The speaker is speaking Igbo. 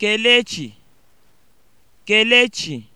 Kelechi Kelechi